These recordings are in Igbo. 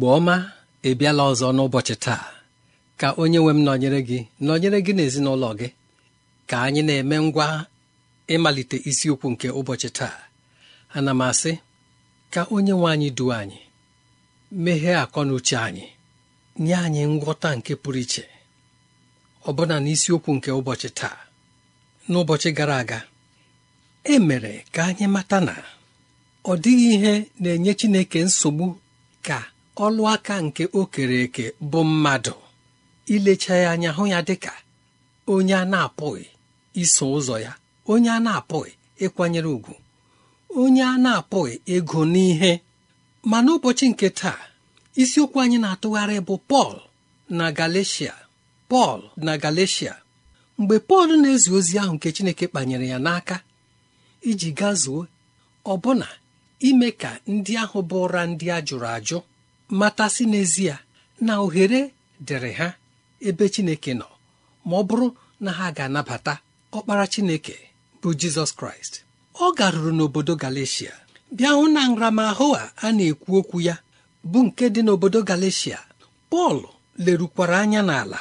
igbo ọma ebiala ọzọ n'ụbọchị taa ka onye nwe m nọnyere gị nọnyere gị n'ezinụlọ gị ka anyị na-eme ngwa ịmalite isiokwu nke ụbọchị taa ana m asị ka onye nwe anyị duo anyị meghee akọ na uche anyị nye anyị ngwọta nke pụrụ iche ọbụna n'isiokwu nke ụbọchị taa n'ụbọchị gara aga e mere ka anyị mata na ọ dịghị ihe na-enye Chineke nsogbu ka ọlụ aka nke o kere eke bụ mmadụ ilecha ya anya hụ ya dịka onye a na-apụghị iso ụzọ ya onye a na-apụghị ịkwanyere ùgwù, onye a na-apụghị ego n'ihe ma n'ụbọchị nke taa isiokwu anyị na-atụgharị bụ Pọl na Galatia Pọl na Galatia mgbe Pọl na-ezi ozi ahụ nke Chineke kpanyere ya n'aka iji gazuo ọbụna ime ka ndị ahụ bụ ụra ndị a jụrụ ajụ matasị n'ezie na ohere dịrị ha ebe chineke nọ ma ọ bụrụ na ha ga-anabata ọkpara chineke bụ jizọs kraịst ọ garuru n'obodo galicia bịa hụ na nramahụ a a na-ekwu okwu ya bụ nke dị n'obodo galicia pọl lerukwara anya n'ala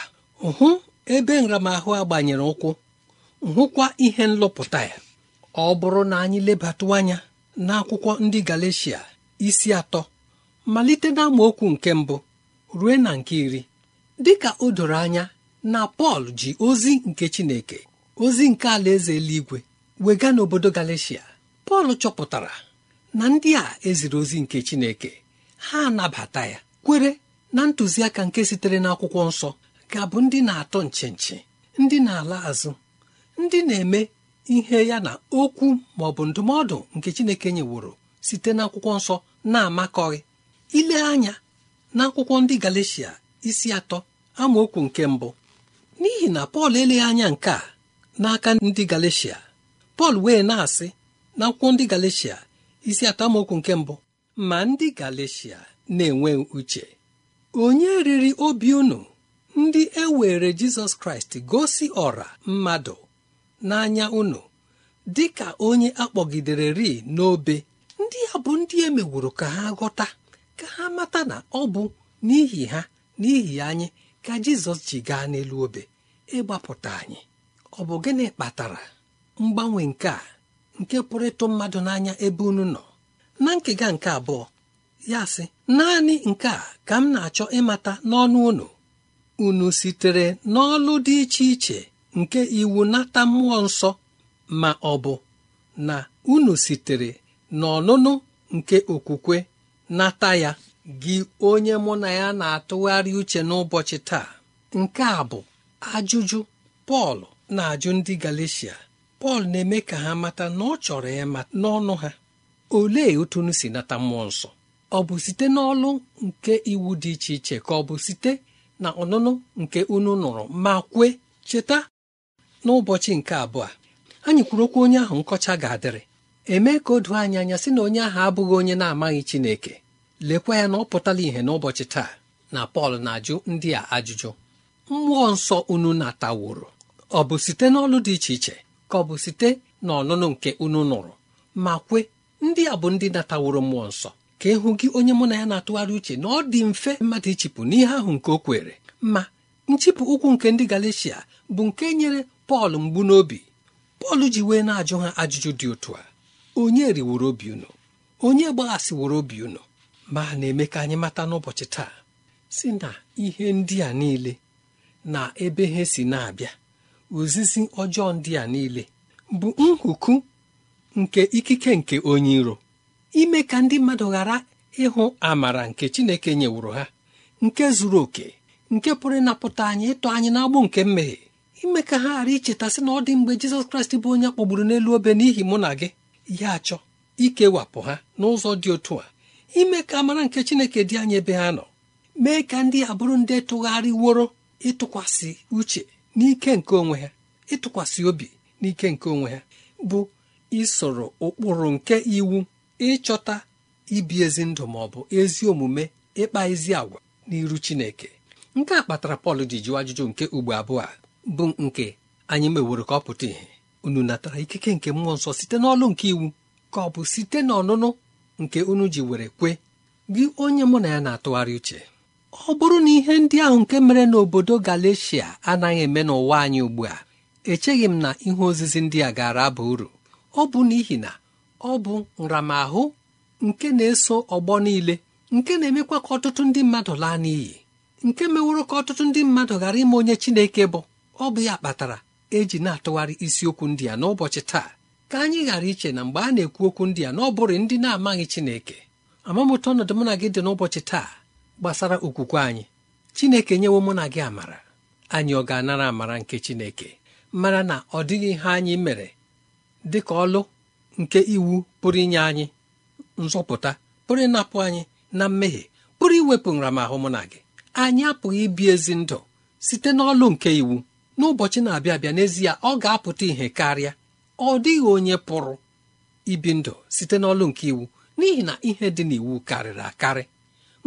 hụ ebe nramahụ a gbanyere ụkwụ hụkwa ihe nlọpụta ya ọ bụrụ na anyị lebatụ anya n'akwụkwọ ndị galicia isi atọ malite na amaokwu nke mbụ ruo na nke iri dịka o doro anya na Pọl ji ozi nke Chineke ozi nke alaeze eluigwe wega n'obodo galicia Pọl chọpụtara na ndị a eziri ozi nke Chineke ha anabata ya kwere na ntụziaka nke sitere n'akwụkwọ nsọ ga-abụ ndị na-atọ nchinchi ndị na-ala azụ ndị na-eme ihe ya na okwu ma ọ bụ ndụmọdụ nke Chineke nyeworo site n'akwụkwọ nsọ na-amakọghị ile anya n'akwụkwọ ndị galicia isi atọ amaokwu nke mbụ n'ihi na Pọl eleghị anya nke a n'aka ndị galicia Pọl wee na-asị n'akwụkwọ ndị galicia isi atọ amaokwu nke mbụ ma ndị galicia na-enwe uche onye riri obi unu ndị e were Jizọs Kraịst gosi ọra mmadụ n'anya unu dị ka onye akpọgidere ri n'obe ndị a bụ ndị e mewuru ka ha ghọta ka ha mata na ọ bụ n'ihi ha n'ihi anyị ka jizọs ji gaa n'elu obe ịgbapụta anyị ọ bụ gịnị kpatara mgbanwe nke a nke pụrụ ịtụ mmadụ n'anya ebe unu nọ na nkega nke abụọ ya sị naanị nke a ka m na-achọ ịmata n'ọnụ unu unu sitere n'ọlụ dị iche iche nke iwu nata mmụọ nsọ ma ọ bụ na unu sitere n'ọnụnụ nke okwukwe nata ya gị onye mụ na ya na-atụgharị uche n'ụbọchị taa nke a bụ ajụjụ Pọl na-ajụ ndị Galeshia Pọl na-eme ka ha mata na ọ chọrọ ya n'ọnụ ha olee otunu si nata mmụọ nsọ ọ bụ site n'ọlụ nke iwu dị iche iche ka ọ bụ site na ọnụnụ nke unu nụrụ ma kwe cheta n'ụbọchị nke abụọ anyị kwuru okwu onye ahụ nkọcha ga-adịrị eme ka o doo anya sị na onye ahụ abụghị onye na-amaghị Chineke lekwa ya na ọ pụtala ìhè n'ụbọchị taa na Pọl na-ajụ ndị a ajụjụ mmụọ nsọ unu na-ataworo ọ bụ site n'ọlụ dị iche iche ka ọ bụ site n'ọnụnụ nke unu nụrụ ma kwe ndị a bụ ndị na-ataworo mmụọ nsọ ka ịhụ e gị onye mụ na ya na-atụgharị uche na ọ dị mfe mmadụ ichipụ n'ihe ahụ nke o kwere ma nchịpụ ụkwụ nke ndị galicia bụ nke nyere Pọl mgbu n'obi Pọl ji wee na-ajụ ha ajụjụ dị otu a onye riworo obi unu onye gbaghasịworo obi unu ma na-eme ka anyị mata n'ụbọchị taa si na ihe ndị a niile na ebe ha si na-abịa ozizi ọjọọ ndị a niile bụ nhuku nke ikike nke onye iro ime ka ndị mmadụ ghara ịhụ amara nke Chineke nyewuru ha nke zuru oke nke pụrụ ịnapụta anyị ịtụ anyị n'agbụ nke mmehie ime ka ha ghara icheta sị na ọ dị mgbe Jizọs Kraịst bụ onye kpọgburu n'elu obe n'ihi mụ na gị ya achọ ikewapụ ha n'ụzọ dị otu a ime ka amara nke Chineke dị anya ebe ha nọ mee ka ndị abụrụ ndị tụgharịworo ịtụkwasị uche n'ike nke onwe ha ịtụkwasị obi n'ike nke onwe ha bụ isoro ụkpụrụ nke iwu ịchọta ibi ezi ndụ ma ọ bụ ezi omume ịkpa ezi agwa n'iru Chineke nke a kpatara Pọl ji jụọ ajụjụ nke ugbo abụọ a bụ nke anyị meworo ka ọ pụta ìhè unu natara ikike nke mmụọ nsọ site n'ọlụ nke iwu ka ọ bụ site n'ọnụnụ nke unu ji were kwe gị onye mụ na ya na-atụgharị uche ọ bụrụ na ihe ndị ahụ nke mere n'obodo Galeshia anaghị eme n'ụwa anyị ugbu a echeghị m na ihe ozizi ndị a gaara aba uru ọ bụ n'ihi na ọ bụ nramahụ nke na-eso ọgbọ niile nke na-emekwa ka ọtụtụ ndị mmadụ laa n'iyi nke meworo ka ọtụtụ ndị mmadụ ghara ime onye Chineke bụ ọ bụ ya kpatara eji na-atụgharị isiokwu ndị a n'ụbọchị taa ka anyị ghara iche na mgbe a na-ekwu okwu ndị a n'ọbụrụ ndị na-amaghị Chineke amamụta ọnọdụ mụ na gị dị n'ụbọchị taa gbasara okwukwe anyị Chineke nyewo mụ na gị amara anyị ọ ga-anara amara nke Chineke mara na ọ dịghị ihe anyị mere dị ka ọlụ nke iwu pụrụ inye anyị nzọpụta pụrụ ịnapụ anyị na mmehie pụrụ iwepụ nramahụ mụ na gị anyị apụghị ibi ezi ndụ site n'ọlụ nke iwu n'ụbọchị na-abịa abịa n'ezie ọ ga-apụta ihe karịa ọ dịghị onye pụrụ ibi ndụ site n'ọlụ nke iwu n'ihi na ihe dị n'iwu karịrị akarị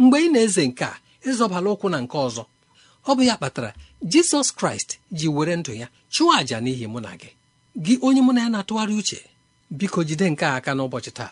mgbe ị na-eze nke a ịzọbala ụkwụ na nke ọzọ ọ bụ ya kpatara jizọs kraịst ji were ndụ ya chụọ àjà n'ihi mụ na gị gị onye mụ na ya na-atụgharị uche biko jide nke a aka n'ụbọchị taa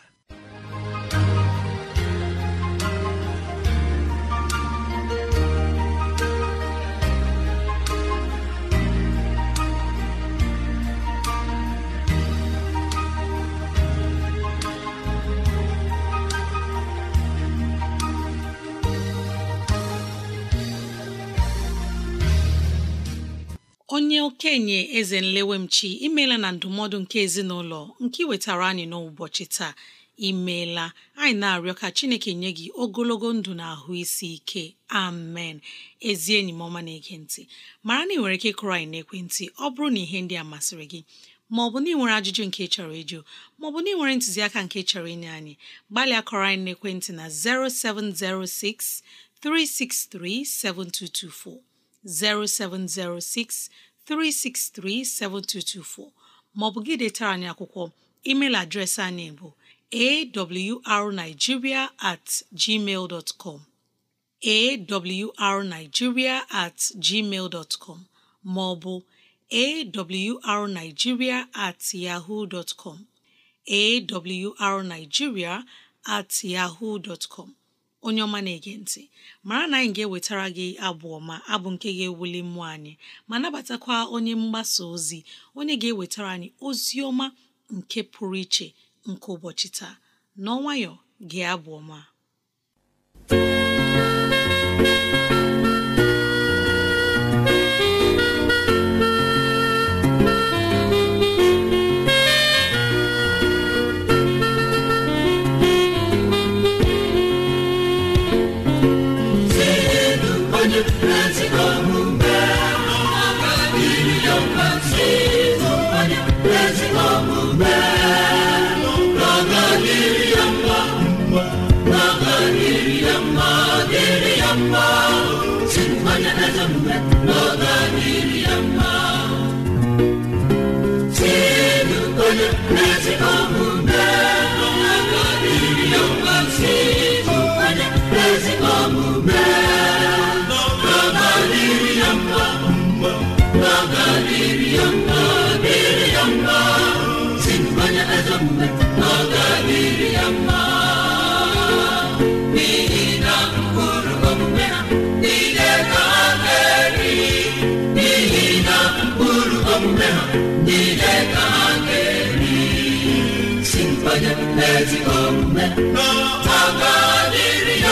onye okenye eze nlewemchi imeela na ndụmọdụ nke ezinụlọ nke wetara anyị n'ụbọchị taa imeela anyị na-arịọ ka chineke nye gị ogologo ndụ na ahụ isi ike amen ezi enyi m ọma na-ege mara na ị nwere ike kụrụ anyị n'ekwentị ọ bụrụ na ihe ndị a masịrị gị bụ na ị nwere ajụjụ nke chọrọ ịjụ bụ na ị nwere ntụziaka nke chọrọ inye anyị gbalịa kọrọ anyị n'ekwentị na 0706 363 7224 0706 363-7224 363-7224 maọbụ gị detara anyị akwụkwọ email adreesị anyị bụ awrnigeria at gmail dot com awrnigeria at gmail dot com maọbụ awrnigeria at yahoo dot com awrnigeria at yahoo dot com onye ọma na-ege ntị mara na anyị ga-ewetara gị abụ ọma abụ nke ga-ewuli mmụọ anyị ma nabatakwa onye mgbasa ozi onye ga-ewetara anyị ozi ọma nke pụrụ iche nke ụbọchị taa na n'ọnwayọ gị abụ ọma umema niile ka ha ga-eri si mkpanye n'ezigbo omume ha ga-adịrị ya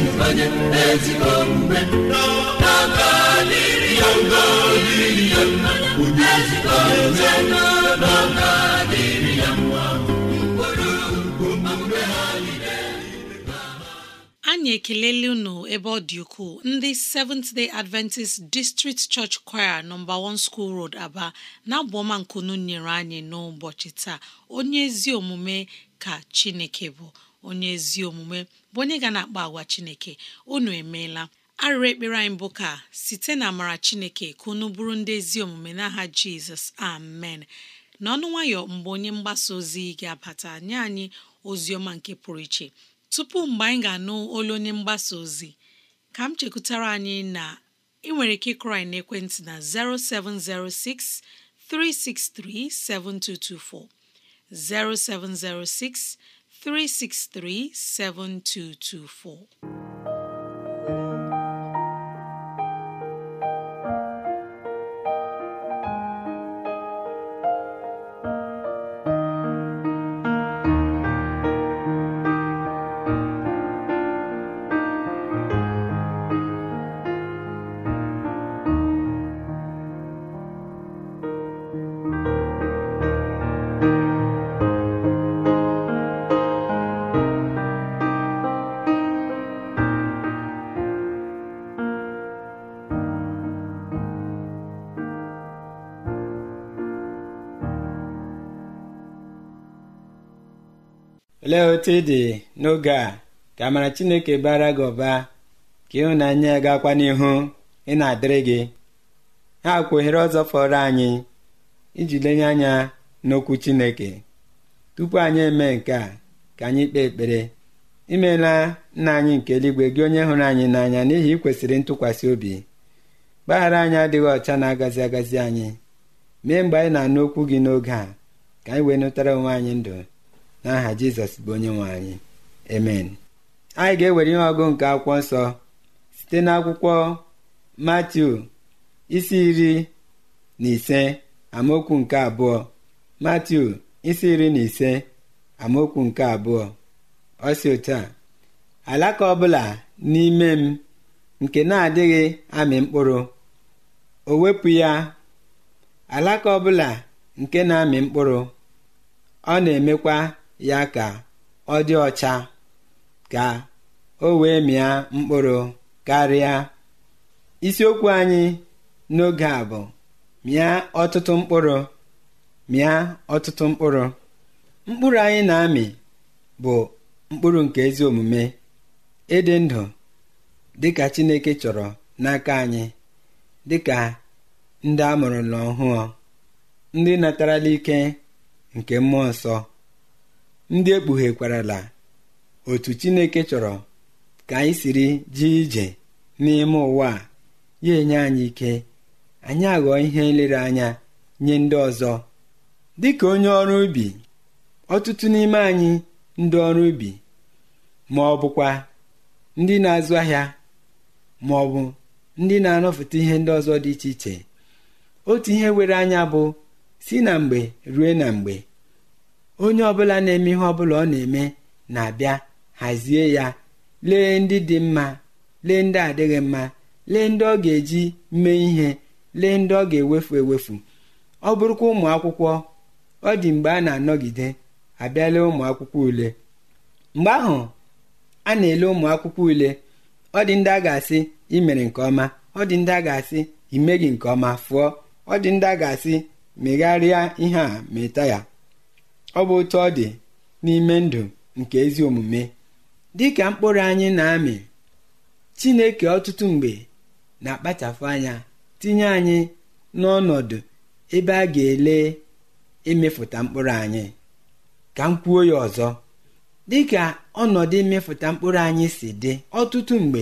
anyị ekelela unu ebe ọ dị ukwuu ndị Seventh Day Adventist District Church Choir nọmba 1 School Road Aba na-abụ nkunu nyere anyị n'ụbọchị taa onye ezi omume ka Chineke bụ onye ezi omume bụ onye ga na-akpa agwa Chineke unu emeela arịrị ekpere anyị bụ ka site na amara Chineke ka unu bụrụ ndị ezi omume n'aha Jizọs amen n'ọnụ nwayọ mgbe onye mgbasa ozi ga-abata nye anyị ozi ọma nke pụrụ iche tupu mgbe anyị ga-anụ olu onye mgbasa ozi ka m chekwutara anyị na ị nwere ike ịkụrụ anyị n'ekwentị na 0706 363 7224 0706 363-7224 lee otu ị dị n'oge a ka amara chineke bara gị ụba ka ịhụnanya ya gakwa n'ihu ị na-adịrị gị ha akwa ọzọ fọrọ anyị iji lenye anya n'okwu chineke tupu anyị eme nke a ka anyị kpee ekpere imeela nna anyị nke eluigwe gị onye hụrụ anyị n'anya n'ihi ikwesịrị ntụkwasị obi mgbaghara anyị adịghị ọcha na-agazi agazi anyị mee mgbe anyị na-anụ okwu gị n'oge a ka anyị wee nụtara onwe anyị ndụ n'aha jizọs bụ onye nwe anyị emen anyị ga-ewere ihe ọgụ nke akwụkwọ nsọ site n'akwụkwọ matiu isi iri na ise amaokwu nke abụọ matiu isi iri na ise amaokwu nke abụọ ọ si alaka ọbụla n'ime m nke na-adịghị amị mkpụrụ o wepụ ya alaka ọbụla nke na-amị mkpụrụ ọ na-emekwa ya ka ọ dị ọcha ka o wee mịa mkpụrụ karịa isiokwu anyị n'oge a bụ mịa ọtụtụ mkpụrụ mịa ọtụtụ mkpụrụ mkpụrụ anyị na-amị bụ mkpụrụ nke ezi omume ịdị ndụ dịka Chineke chọrọ n'aka anyị dịka ndị a mụrụ n'ọhụụ ndị natarala ike nke mmụọ nsọ ndị ekpughekwara otu chineke chọrọ ka anyị siri ji ije n'ime ụwa ya enye anyị ike anyị aghọọ ihe nlereanya nye ndị ọzọ dịka onye ọrụ ubi ọtụtụ n'ime anyị ndị ọrụ ubi ma ọ bụkwa ndị na-azụ ahịa ma ọ bụ ndị na-anọfụta ihe ndị ọzọ dị iche iche otu ihe were anya bụ si na mgbe rue na mgbe onye ọbụla na-eme ihe ọbụla ọ na-eme na-abịa hazie ya lee ndị dị mma lee ndị adịghị mma lee ndị ọ ga-eji mee ihe lee ndị ọ ga-ewefu ewefu ọ bụrụkwa ụmụ akwụkwọ ọ dị mgbe a na-anọgide abịala ụmụ akwụkwọ ule mgbe ahụ a na-ele ụmụ akwụkwọ ule ọ dị ndị a ga-asị imere nke ọma ọ dị ndị a ga-asị imeghị nke ọma fụọ ọ dị ndị a ga-asị megharịa ihe a meta ya ọ bụ otu ọ dị n'ime ndụ nke ezi omume dị ka mkpụrụ anyị na-amị Chineke ọtụtụ mgbe na-akpachapụ anya tinye anyị n'ọnọdụ ebe a ga-ele ịmịfụta mkpụrụ anyị ka m kwuo ya ọzọ ka ọnọdụ ịmịfụta mkpụrụ anyị si dị ọtụtụ mgbe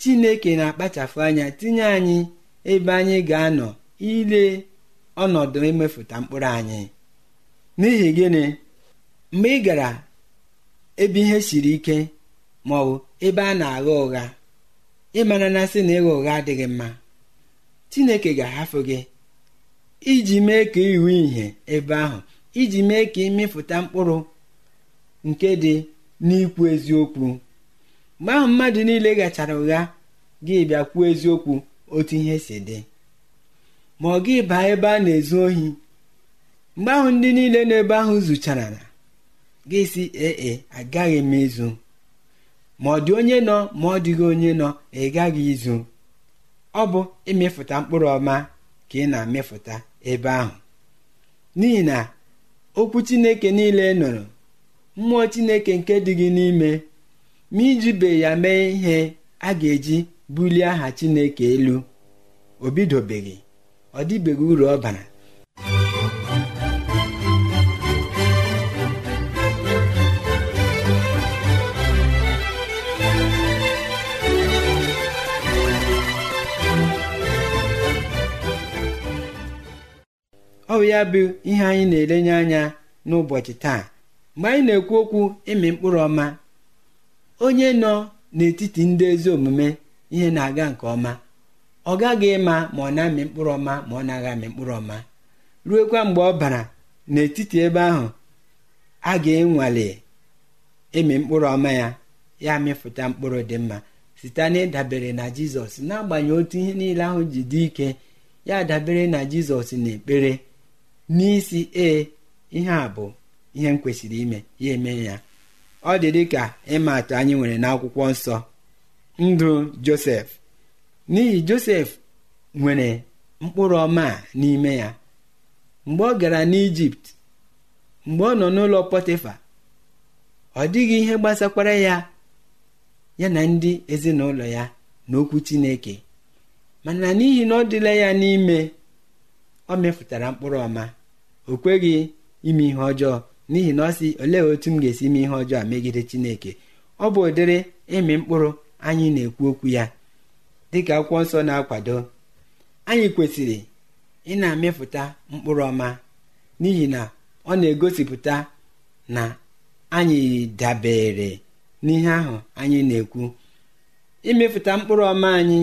Chineke na-akpachapụ anya tinye anyị ebe anyị ga-anọ ile ọnọdụ ịmịfụta mkpụrụ anyị n'ihi gịnị mgbe ị gara ebe ihe siri ike ma ọ bụ ebe a na-agha ụgha ịmara na sị na ịgha ụgha adịghị mma Chineke ga-ahafụ gị iji mee ka iwu ihe ebe ahụ iji mee ka ịmịpụta mkpụrụ nke dị n'ikwu eziokwu mgbe ahụ mmadụ niile gachara ụgha gị bịa kwuo eziokwu otu ihe si dị ma ọ gị baa ebe a na-ezu ohi mgbe ahụ ndị niile n'ebe ahụ zụchara na gị si ee e, agaghị m izu ma ọ dị onye nọ ma ọ dịghị onye nọ ị gaghị izu ọ bụ ịmịfụta mkpụrụ ọma ka ị na-amịfụta ebe ahụ n'ihi na okwu chineke niile nụrụ mmụọ chineke nke dị gị n'ime ma ijibe ya mee ihe a ga-eji bulie aha chineke elu o bidobeghị ọ dịbeghị uru ọ bara ọ bụ ya bụ ihe anyị na-elenye anya n'ụbọchị taa mgbe anyị na-ekwu okwu ịmị mkpụrụ ọma onye nọ n'etiti ndị ezi omume ihe na-aga nke ọma ọ gaghị ịma ma ọ na-amị mkpụrụ ọma ma ọ na-agha amị mkpụrụ ọma Ruokwa mgbe ọ bara n'etiti ebe ahụ a ga-enwale ịmị mkpụrụ ọma ya ya mịpụta mkpụrụ dị mma site na na jizọs n'agbanyeghị otu ihe niile ahụ ji dị ike ya dabere na jizọs na ekpere n'isi ee ihe a bụ ihe m kwesịrị ime ya eme ya ọ dị dị ka ịma atụ anyị nwere n'akwụkwọ nsọ ndụ josef n'ihi josef nwere mkpụrụ ọma n'ime ya mgbe ọ gara n'ijipt mgbe ọ nọ n'ụlọ pọtịfa ọ dịghị ihe gbasakwara ya ya na ndị ezinụlọ ya na okwu chineke mana n'ihi na ọ dịla ya n'ime ọ mefụtara mkpụrụ ọma o kweghị ime ihe ọjọọ n'ihi na ọ sị olee otu m ga-esi ime ihe ọjọọ a megide chineke ọ bụ ụdịrị ịmị mkpụrụ anyị na-ekwu okwu ya dịka akwụkwọ nsọ na-akwado anyị kwesịrị ị na-amịfụta mkpụrụ ọma n'ihi na ọ na-egosipụta na anyị dabere n'ihe ahụ anyị na-ekwu imefụta mkpụrụ ọma anyị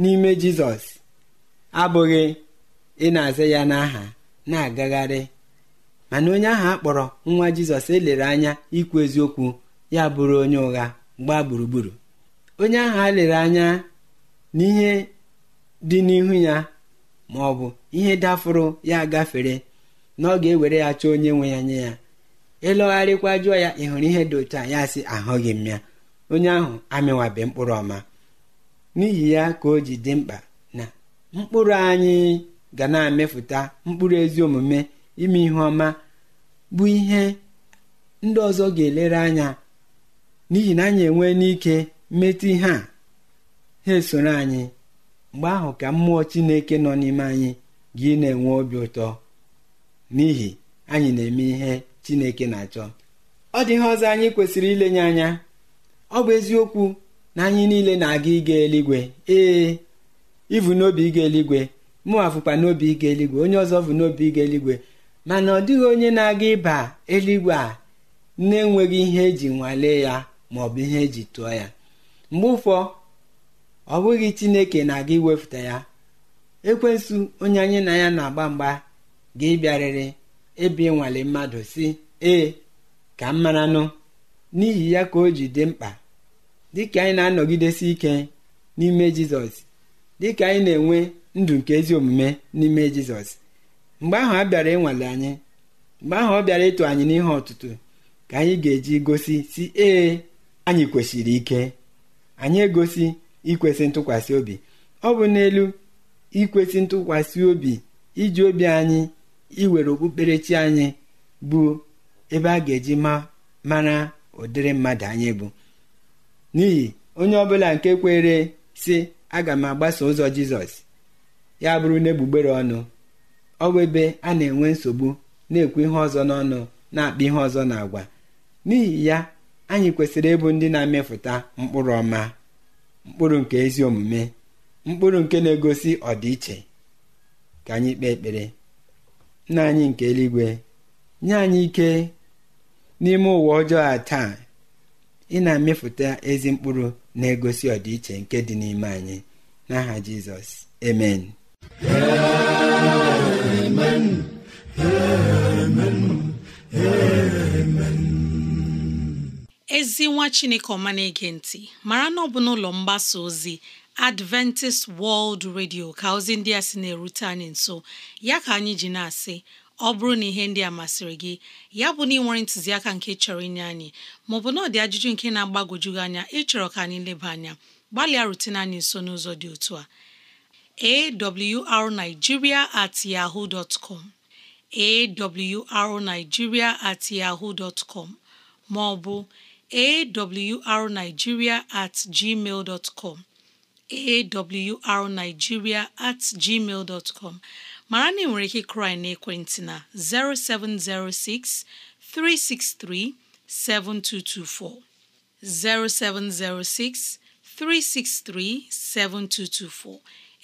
n'ime jizọs abụghị ị na-aza ya n'aha na-agagharị mana onye ahụ kpọrọ nwa jizọs elere anya ikwu eziokwu ya bụrụ onye ụgha gbaa gburugburu onye ahụ a lere anya n'ihe dị n'ihu ya ma ọ bụ ihe dafụrụ ya gafere na ọ ga-ewere ya chọọ onye nwe ya nye ya ịlọgharịkwa jụọ ya ị hụrụ ihe dị otu a ya sị ahụghị m ya onye ahụ amịwabe mkpụrụ ọma n'ihi ya ka o ji dị mkpa na mkpụrụ anyị ga na-emefụta mkpụrụ ezi omume ime ihe ọma bụ ihe ndị ọzọ ga-elere anya n'ihi na anyị enwee n'ike mmetụ ihe a ha esoro anyị mgbe ahụ ka mmụọ chineke nọ n'ime anyị gị na-enwe obi ụtọ n'ihi anyị na-eme ihe chineke na-achọ ọ dị ihe ọzọ anyị kwesịrị ilenye anya ọ bụ eziokwu na anyị niile na-aga ịga eluigwe ee ivu n'obi ịga eluigwe mụnwa fụkwa n'obi ige eluigwe onye ọzọ bụ n'obi ịga eluigwe mana ọ dịghị onye na-aga ịba eluigwe a na-enweghị ihe eji nwalee ya ma ọ bụ ihe eji tụọ ya mgbe ụfọ ọ bụghị chineke na-aga iwepụta ya ekwensu onye anyị na ya na-agba mgba ga-ịbịarịrị ebe ịnwale mmadụ si ee ka m maranụ n'ihi ya ka o ji dị mkpa dịka anyị na-anọgidesi ike n'ime jizọs dịka anyị na-enwe ndụ nke ezi omume n'ime jizọs mgbe ahụ a bịara ịnwale anyị mgbe ahụ ọ bịara ịtụ anyị n'ihe ọtụtụ ka anyị ga-eji gosi si ee anyị kwesịrị ike anyị egosi ikwesị ntụkwasị obi ọ bụ n'elu ikwesị ntụkwasị obi iji obi anyị iwere okpukperechi anyị bụ ebe a ga-eji ma mara ụdịrị mmadụ anyị bụ n'ihi onye ọbụla nke kwere sị aga m agbaso ụzọ jizọs ya bụrụ n'egbugbere ọnụ ọ bụ ebe a na-enwe nsogbu na-ekwu ihe ọzọ n'ọnụ na-akpa ihe ọzọ na n'ihi ya anyị kwesịrị ịbụ ndị na-amịpụta mkpụrụ ọma mkpụrụ nke ezi omume mkpụrụ nke na-egosi ọdịiche ka anyị kpee ekpere nna anyị nke eluigwe nye anyị ike n'ime ụwa ọjọọ a taa ị na-amịpụta ezi mkpụrụ na-egosi ọdịiche nke dị n'ime anyị n'aha Jizọs amen ezi nwa chineke ọma na-ege ntị mara na ọ bụ n'ụlọ mgbasa ozi adventist world radio ka ozi ndị a sị na-erute anyị nso ya ka anyị ji na-asị ọ bụrụ na ihe ndị a masịrị gị ya bụ na ị nwere ntụziaka nke chọrọ inye anyị maọbụ na ọ dị ajụjụ nke na-agbagwoju anya ịchọrọ ka anyị leba anya gbalịa rutene anyị nso n'ụzọ dị otu a awrnigeria at yahoo dot com awrnigeria at yahoo dot maọbụ awrnigeria at gmail dot com at gmail dot mara na ị nwere ike krai n'ekwentị na 0706 363 7224 0706 363 7224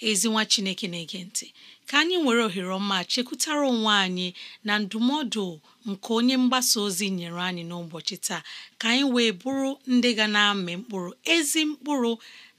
ezinwa chineke na-ege ntị ka anyị were ohere ọma chekwutara onwe anyị na ndụmọdụ nke onye mgbasa ozi nyere anyị n'ụbọchị taa ka anyị wee bụrụ ndị ga na-amị mkpụrụ ezi mkpụrụ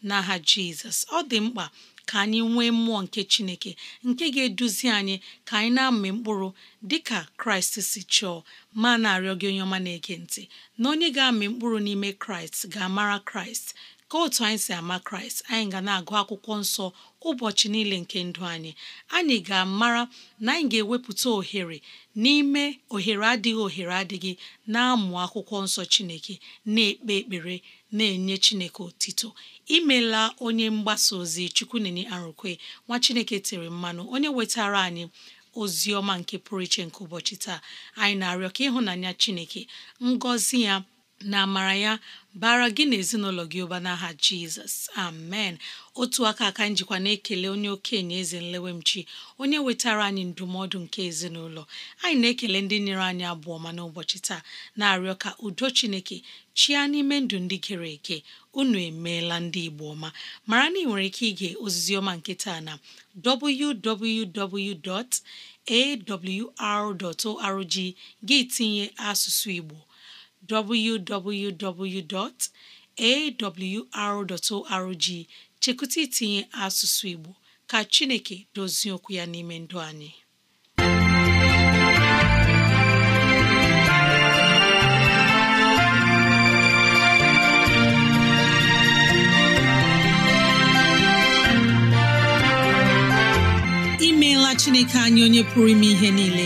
n'aha jizọs ọ dị mkpa ka anyị nwee mmụọ nke chineke nke ga-eduzi anyị ka anyị na-amị mkpụrụ dịka kraịst si chọọ ma na-arịọ gị onye ọma na-ege ntị na onye ga-amị mkpụrụ n'ime kraịst ga-amara kraịst ka otu anyị si ama kraịst anyị ga na-agụ akwụkwọ nsọ ụbọchị niile nke ndụ anyị anyị ga-amara na anyị ga-ewepụta ohere n'ime ohere adịghị ohere adịghị na-amụ akwụkwọ nsọ chineke na-ekpe ekpere na-enye chineke otito imela onye mgbasa ozi chukwunenye arụkwe nwa chineke tere mmanụ onye wetara anyị ozi ọma nke pụrụ iche nke ụbọchị taa anyị na-arịọ ka ịhụnanya chineke ngọzi ya na amara ya bara gị na ezinụlọ gị ụba n'aha jizọs amen otu aka aka njikwa na-ekele onye okenye eze nlewemchi onye wetara anyị ndụmọdụ nke ezinụlọ anyị na-ekele ndị nyere anyị abụọ ma n'ụbọchị taa na-arịọ ka udo chineke chia n'ime ndụ ndị gere eke unu emeela ndị igbo ọma mara na ị nwere ike ige oziziọma nke taa na www.awr.org gị tinye asụsụ igbo www.awr.org chekwụta itinye asụsụ Igbo ka Chineke dozie okwu ya n'ime ndụ anyị imeela Chineke anyị onye pụrụ ime ihe niile